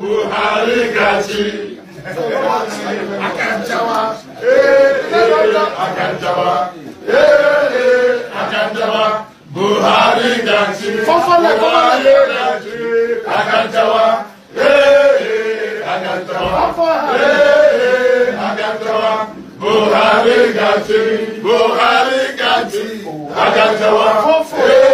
Buhari gaji. Akanjawa. Akanjawa. Akanjawa. Buhari gaji. Buhari gaji. Akanjawa. Akanjawa. Akanjawa. Buhari gaji. Buhari gaji. Akanjawa. Fọ́fọ́lẹ̀.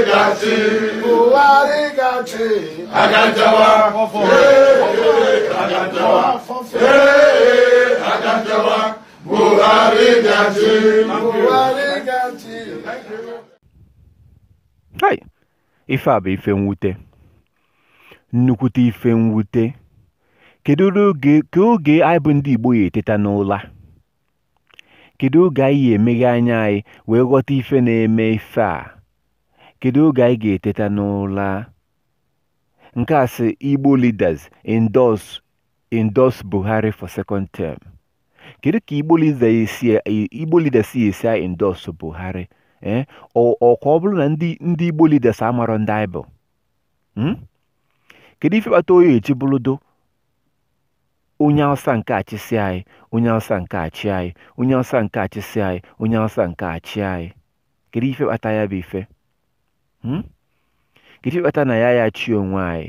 gachi Buhari ife a bụ ife mwute nnukwute ife mwute kedu oge oge anyị bụ ndị Igbo ya eteta n'ụla kedu oge anyị ya emeghe anya anyị wee ghọta ife na-eme ife a Kedu oge anyị ga-eteta n'ụra? Nkasị Igbo Leaders Endorse Buhari for Second Term Kedu ka Igbo Leaders si esi endorse Buhari? Eh? Ọkwa ọ bụrụ na ndị Igbo Leaders amarọ ndị anyị bụ? Hmm? Kedu ife kpata onye eji bụrụdo onye Hausa nke a anyị, onye Hausa nke achị anyị, onye Hausa nke a anyị, onye Hausa nke achị anyị? Kedu ife kpata ya bụ ife? nkịtị hmm? ịkpata na ya ya chi onwe anyị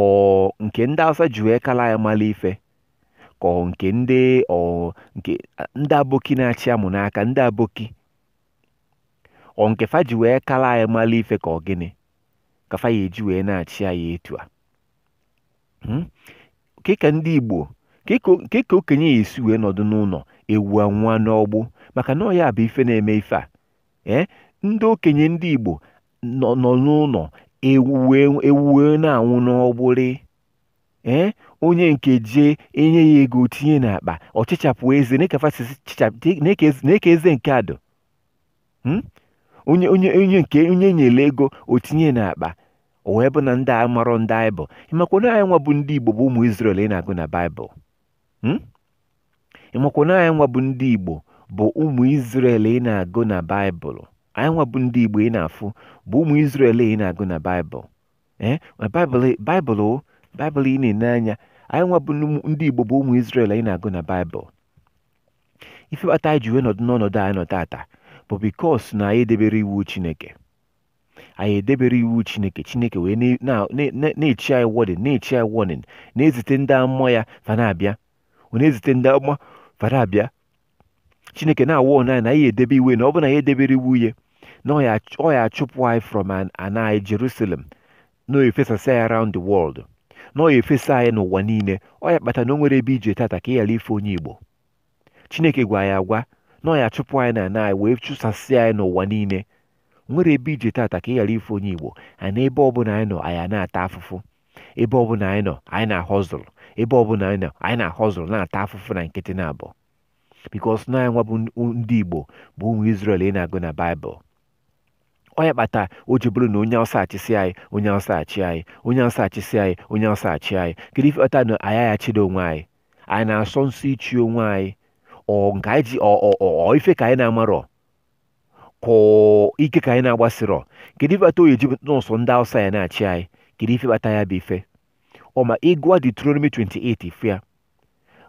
ọ nke ndị Hausa ji wee kala ya mala ife ka ọ nke ndị ọ nke ndị aboki na-achị amụ n'aka ndị aboki ọ nke fa ji wee kala anyị mala ife ka ọ gịnị ka fa ya eji wee na-achị anyị etu a kịka ndị Igbo kịka okenye ya esi wee nọdụ n'ụlọ ewu anwa n'ọgbụ maka na ọ ya bụ ife na-eme ife a Eh? ndị okenye ndị Igbo nọ n'ụlọ ewuwe wee na-anwụ n'ọgbụrị eh? onye nke jee enye ya ego tinye n'akpa ọ chịchapụ eze na-eke eze nke adụ hmm? onye onye onye nke onye nyere ego o tinye n'akpa o wee bụ na ndị a marọ ndị anyị bụ ịmakwa na anyị nwa bụ ndị Igbo bụ ụmụ Izrel ị na-agụ na Baịbụl hmm? ịmakwa na anyị nwa bụ ndị Igbo bụ ụmụ Izrel ị na-agụ na Baịbụl anyị nwa bụ ndị Igbo ị na-afụ bụ ụmụ Izrel ị na-agụ na Baịbụl ee eh, Baịbụl Baịbụl ị na-ene anya anyị nwa bụ ndị Igbo bụ ụmụ Izrel ị na-agụ na Baịbụl ife kpata anyị ji wee nọdụ n'ọnọdụ anyị nọ taata bụ bikos na anyị edebere iwu Chineke anyị edebere iwu Chineke Chineke wee na-echi anyị wọdịn na-echi anyị wọdịn na-ezite ndị amụma ya fa na-abịa ọ na-ezite ndị amụma fa na-abịa chineke na-awa onye na anyị edebe iwe na ọ bụ na anyị edebere iwu ya na ọ ya achụpụ anyị from an anyị Jerusalem na ọ efesasị anyị around the world na ọ ya efesa anyị n'ụwa niile ọ ya kpata na o nwere ebe ije tata ka ị ghara ife onye Igbo chineke gwa ya agwa na ọ ya achụpụ anyị na anyị wee chụsasị anyị n'ụwa niile nwere ebe ije tata ka ị ghara ife onye Igbo ana ebe ọ bụla anyị nọ anyị na-ata afụfụ ebe ọ bụla anyị nọ anyị na-ahọzụlụ ebe ọbụla anyị nọ anyị na-ahọzụlụ na-ata afụfụ na nkịtị na abụọ bikos nọ ya nwa bụ ndị igbo bụ ụmụ isrel ị na-agụ na baịbụl onye kpata o ji bụrụ na onye awụsa achịsị anyị onye awụsa achị anyị onye awụsa achịsị anyị onye awụsa achị anyị kedu ife ọta na anyị ya onwe anyị anyị na-asọ nsọ ichi onwe anyị ọ nke anyị ji ọ ife ka anyị na-amarọ ka ike ka anyị na-agbasịrọ kedu ife kpata o ji nọọsụ ndị awụsa ya na-achị anyị kedu ife kpata ya bụ ife ọma ịgụa Deuteronomy 28 fia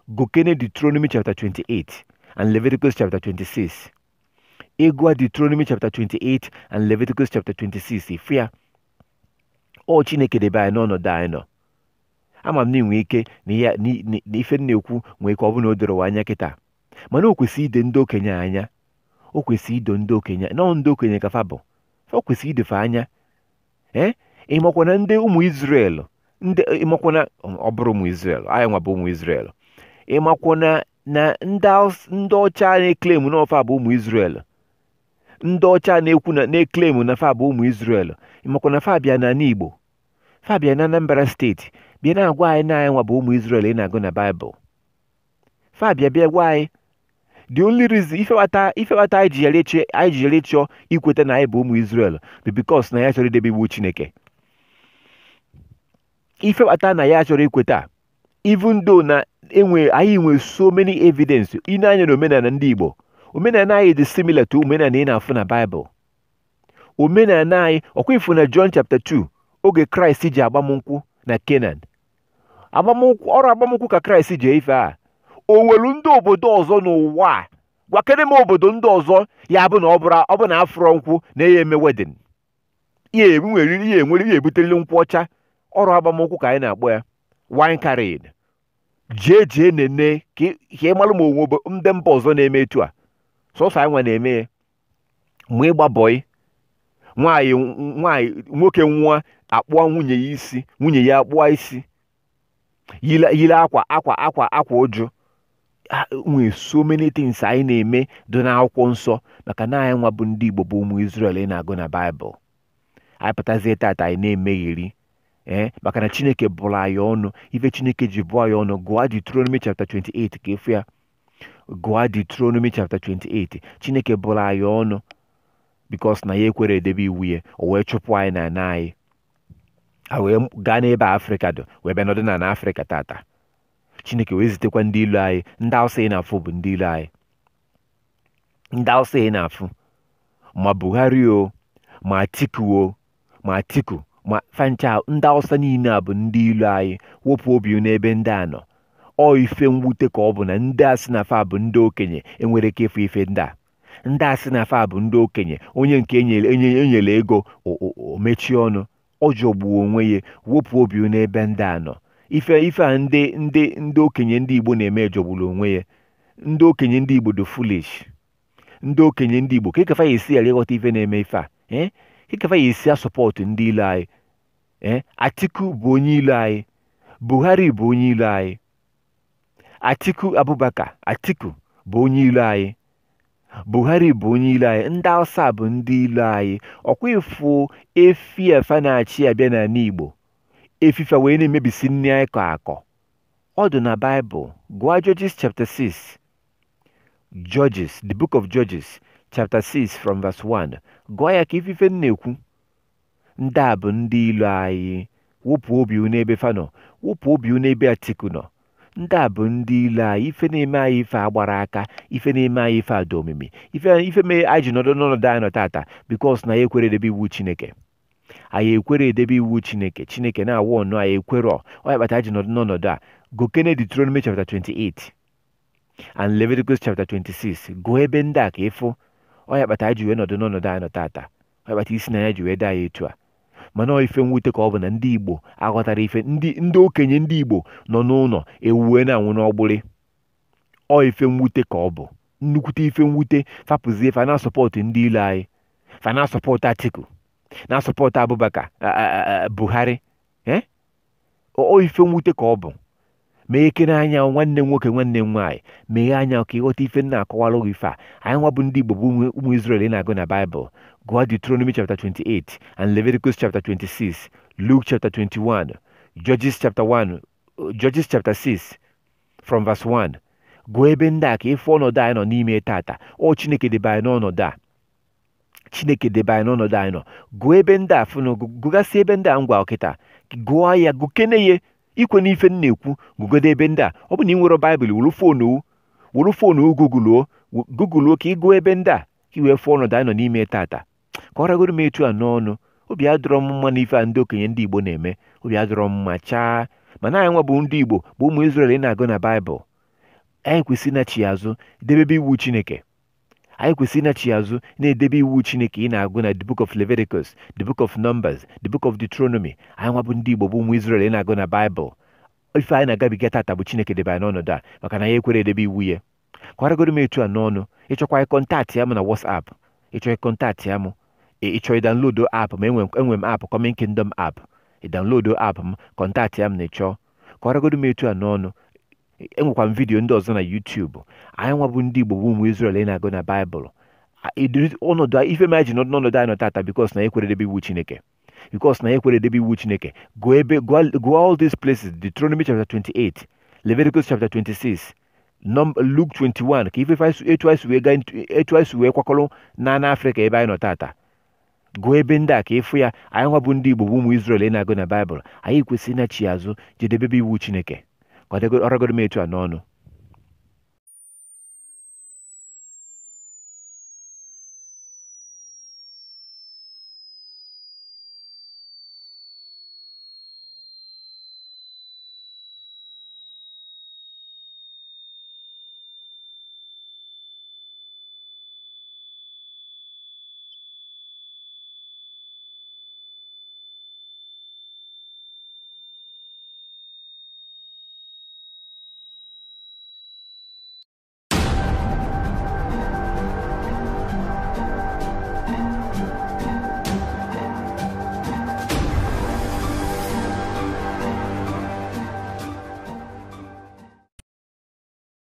gụkene Deuteronomy chapter 28 and Leviticus chapter 26 ịgụa Deuteronomy chapter 28 and Leviticus chapter 26 ife ya ọ Chineke debe anyị n'ọnọdụ anyị nọ ama m na inwe ike na ife na-ekwu nwee ike ọ bụla o doro anya kịta mana o kwesịrị ide ndị okenye anya o kwesịrị ido ndị okenye nọ ndị okenye ka fa bụ o kwesịrị idefe anya ee ịmakwana ndị ụmụ Izrel ndị ịmakwana ọ bụrụ ụmụ Izrel anyị nwa bụ ụmụ Izrel ịmakwo na na ndị ọcha na-eklemu na ọfa bụ ụmụ Israel ndị ọcha na-ekwu na na-eklemu na fa bụ ụmụ Israel ịmakwa na fa bịa na Igbo fa bịa na Anambra steeti bịa na-agwa anyị na anyị nwa bụ ụmụ Israel ị na-agụ na Baịbụl fa bịa bịa gwa anyị the only reason ifewata ifewata anyị ji yere chọọ ikweta na anyị bụ ụmụ Israel bụ because na ya chọrọ idebe iwu Chineke ifewata na ya chọrọ ikweta even though na enwe anyị nwere so many evidence ine anya na omenala ndị Igbo omenala anyị dị similar to omenala ị na-afụ na Bible omenala anyị ọkwa ifu na John chapter 2 oge Kraịst ji agbamnkwụ na Kenan ọrụ agbamnkwụ ka Kraịst ji ife a o nwere ndị obodo ọzọ n'ụwa a gwakere m obodo ndị ọzọ ya bụ na ọ bụ na afụrọ nkwụ na ya eme wedin ya enwere ihe enwere ihe ebutereli nkwụ ọcha ọrụ agbamnkwụ ka anyị na-akpọ ya wine carried jee jee nene ka ịmalụ ma onwe ndị mba ọzọ na-eme etu a sọsọ anyị nwa na-eme ya mụ ịgba bọị nwanyị nwoke nwa akpụọ nwunye ya isi nwunye ya akpụọ isi yile akwa akwa akwa akwa ụjụ nwee so many things anyị na-eme dị n'akwụkwọ nsọ maka na anyị nwa bụ ndị Igbo bụ ụmụ Izrel ị na-agụ na Baịbụl anyị pụtazie tata anyị na-emegheri ee eh? maka na chineke bụrụ anyị ọnụ ife chineke ji bụọ anyị ọnụ gụọ Deuteronomy chapter 28 ka efu ya gụọ Deuteronomy chapter 28 chineke bụrụ anyị ọnụ bikos na ya ekwere edebe iwu ya o wee chụpụ anyị na na anyị a wee gaa n'ebe afrịka dị wee bịa nọdụ na na afrịka tata chineke wee zitekwa ndị ilu anyị ndị awụsa ị na-afụ bụ ndị ilu anyị ndị awụsa ị na-afụ ma buhari o ma atiku o ma atiku ma fancha ndị Awụsa niile a bụ ndị ilu anyị wepụ obi n'ebe ndị a nọ ọ ife mwute ka ọ bụ na ndị a na fa bụ ndị okenye enwere ike ịfụ ife ndị a ndị asị na fa bụ ndị okenye onye nke enyere ego omechie ọnụ ọ jọgbuo onwe ya wepụ obi n'ebe ndị a nọ ife ife a ndị ndị ndị okenye ndị Igbo na-eme jọgburu onwe ya ndị okenye ndị Igbo dị foolish ndị okenye ndị Igbo ka ikefa ya esi ghara ịghọta ife na-eme ife a ee eh? ikefa ya esi ndị ilu anyị Eh? Atiku bụ onye ilo anyị, Buhari bụ onye ilo anyị, Atiku Abubakar Atiku bụ onye ilo anyị, Buhari bụ onye ilo anyị, ndị awụsa bụ ndị ilo anyị, ọkwa ịfụ efi efe na-achị abịa n'ala Igbo efife wee na-emebisi nri anyị kọ akọ ọ dị na Baịbụl gụọ Judges chapter 6 Judges the book of Judges chapter 6 from verse 1 gụọ ya ka ifife na-ekwu ndị a bụ ndị ilu anyị wụpụ obi unu ebe fa wụpụ obi unu ebe Atiku nọ ndị a bụ ndị ilu anyị ife na-eme anyị ife agbara aka ife na-eme anyị ife ada omimi ife ife mee anyị ji nọdụ n'ọnọdụ anyị nọ tata bikos na anyị ekwere edebe iwu Chineke anyị ekwere edebe iwu Chineke Chineke na-awụ ọnụ anyị ekwere ọ ya kpata ji nọdụ n'ọnọdụ a gokene Deuteronomy chapter 28 and Leviticus chapter 26 gụọ ebe ndị a ka ịfụ ọ ya kpata ji wee nọdụ n'ọnọdụ anyị nọ tata ọ ya kpata isi na ya ji wee ya etu a mana ife mwute ka ọ bụ na ndị igbo aghọtara ife ndị okenye ndị igbo nọ n'ụlọ ewuwe na-anwụ n'ọgbụrị ọ ife mwute ka ọ bụ nnukwute ife mwute fapụzie fa sọpọtụ ndị ilu anyị fa na Atiku na sọpọtụ abụbaka Buhari eh? ọ ife mwute ka ọ bụ mee ekere anya nwanne m nwoke nwanne m nwaanyị meghee anya ka ịghọta ife nna akọwara gị ife a anyị nwa bụ ndị igbo bụ ụmụ Izrel na-agụ na baịbụl Go Deuteronomy chapter 28 and Leviticus chapter 26, Luke chapter 21, Judges chapter 1, uh, Judges chapter 6 from verse 1. Gụọ ebe ndị a ka ịfụ ọnọdụ anyị nọ n'ime tata ọ Chineke debe anyị n'ọnọdụ a Chineke debe anyị n'ọnọdụ anyị nọ gụọ ebe ndị a fụnụ gụgasị ebe ndị a ngwa ọkịta gụọ ya gụkene ya ikwe n'ife m na-ekwu gụgode ebe ndị a ọ bụ na ị nwere baịbụl wuru foonu wuru foonu ka ị gụọ ebe ndị a ka ị wee fụọ ọnọdụ n'ime tata kọragoro m etu a n'ọnụ obi adọrọ m mma na ife a ndị okenye ndị Igbo na-eme obi adọrọ m mma chaa mana anyị nwa bụ ndị Igbo bụ ụmụ Izrel ị na-agụ na Baịbụl anyị kwesịrị ịnachi azụ debebe iwu Chineke anyị kwesịrị ịnachi azụ na-edebe iwu Chineke ị na-agụ na the book of Leviticus the book of Numbers the book of Deuteronomy anyị nwa ndị Igbo bụ ụmụ Izrel na-agụ na Baịbụl ife anyị na-agabiga tata bụ Chineke debe a maka na ya ekwere edebe iwu ya a n'ọnụ ịchọkwa ịkọntaktị ya m na ịchọ ịkọntaktị ya mụ ị chọọ ịdanlodo app ma enwe m app Coming Kingdom app ịdanlodo app m kọntaktị ya m na ịchọọ kọwaragodo m etu a n'ọnụ enwekwa m vidiyo ndị ọzọ na Yutubu, anyị nwa ndị Igbo bụ ụmụ Israel ị na-agụ na Baịbụl ọnọdụ ife ma ji nọdụ n'ọnọdụ anyị nọ tata because na ekwere ekweredebe iwu Chineke because na ekwere ekweredebe iwu Chineke go ebe go all these places Deuteronomy chapter 28 Leviticus chapter 26 Luke 21 ka ife etu anyị si wee kwakọrọ na n'Africa ebe anyị nọ tata gụọ ebe ndị a ka ịfụ ya anyị nwa bụ ndị Igbo bụ ụmụ Izrel ị na-agụ na Baịbụl anyị kwesịrị ịnachi azụ jedebebe iwu Chineke ka ọ m etu a n'ọnụ